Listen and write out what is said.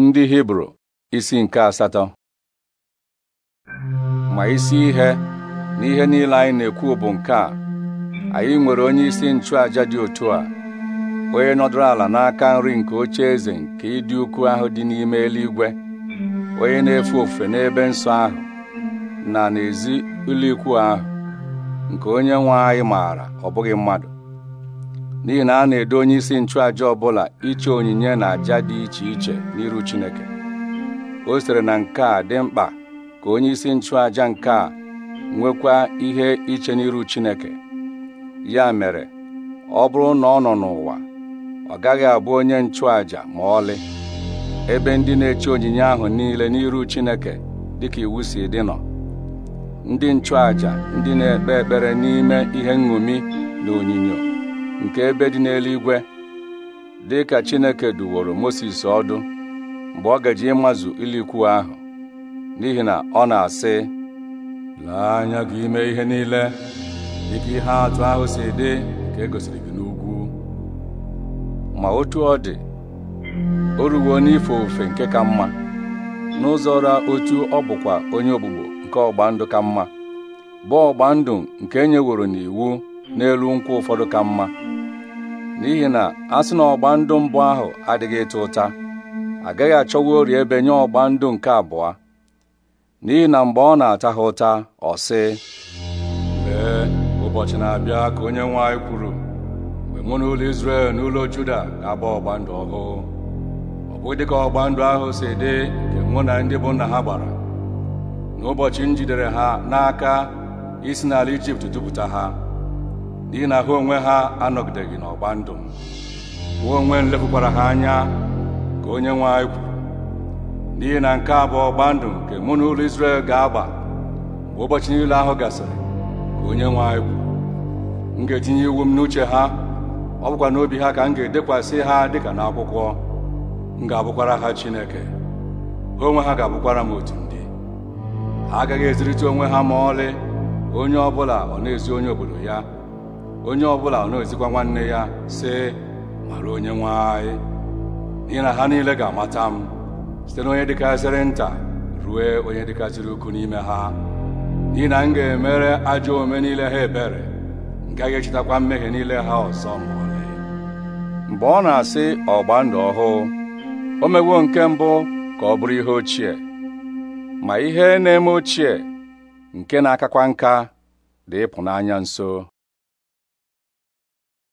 ndị hibru isi nke asatọ ma isi ihe na ihe niile anyị na-ekwu bụ nke a anyị nwere onye isi nchụaja dị otu a onye nọdụrụ ala n'aka nri nke oche eze nke ịdị ukwu ahụ dị n'ime eluigwe onye na-efe ofufe n'ebe nsọ ahụ na n'ezi ụlọikwu ahụ nke onye nwe anyị maara ọ bụghị mmadụ n'ihi na a na-edo onye isi nchụaja ọbụla iche onyinye na aja dị iche iche n'iru Chineke o siri na nke a dị mkpa ka onye isi nchụàja nke a nwekwa ihe iche n'iru Chineke ya mere ọ bụrụ na ọ nọ n'ụwa ọ gaghị abụ onye nchụàjà ma ọlị ebe ndị na-eche onyinye ahụ niile n'iru Chineke dịka iwu si dị nọ ndị nchụàjà ndị na-ekpe ekpere n'ime ihe nṅomi na onyinyo nke ebe dị n'eluigwe dị ka Chineke duworo Mosis ọdụ mgbe ọ gaji ịmazụ ilikwu ahụ n'ihi na ọ na-asị lee anya gị ime ihe niile dịka ihe atụ ahụ si dị nke e gosiri gị n'ugwu ma otu ọ dị o ruwo n'ife ofufe nke ka mma n'ụzọ ra otu ọ bụkwa onye ogbugbo nke ọgba ndụ ka mma bụ ọgba ndụ nke enye n'iwu n'elu nkwụ ụfọdụ ka mma n'ihi na a sị na ọgba ndụ mbụ ahụ adịghị ịta ụta agaghị achọwa ori ebe nye ọgba ndụ nke abụọ n'ihi na mgbe ọ na-ata ha ụta ọ sị lee ụbọchị na-abịa ka onye nwe anyị kwuru mgbe mụ na ụlọ Izrel na ụlọ Juda ga-agba ọgba ndụ ọhụụ ọ bụghị dịka ọgba ndụ ahụ si dị nke mụ na ndị bụ nna ha gbara n'ụbọchị m jidere ha n'aka isi n'ala Ijipt dupụta ha n'ihi na ha onwe ha anọgideghị n'ọgba ndụ m onwe m ha anya ka onye nwe anyị kwuru n'ihi na nke a bụ ọgba ndụ nke mụ na ụlọ Izrel ga-agba mgbe ụbọchị niile ahụ gasịrị ka onye nwe anyị kwuru m ga-etinye iwu m n'uche ha ọ bụkwa n'obi ha ka m ga-edekwasị ha dịka n'akwụkwọ m ga-abụkwara ha Chineke ha onwe ha ga-abụkwara m otu ndị ha agaghị ezirịta onwe ha ma ọlị onye ọ bụla ọ na-ezi onye obodo ya onye ọ bụla na-ezikwa nwanne ya sị mara onye nwe anyị n'ihi na ha niile ga-amata m site na onye dịkarịsịrị nta rue onye dịkasịrị ukwu n'ime ha n'ihi na m ga-emere ajọ ome niile ha ebere m gaghị echetakwa mmehie niile ha ọzọ ma mgbe ọ na-asị ọgba ndụ ọhụụ o mewo nke mbụ ka ọ bụrụ ihe ochie ma ihe na-eme ochie nke na-akakwa nka dị ịpụnanya nso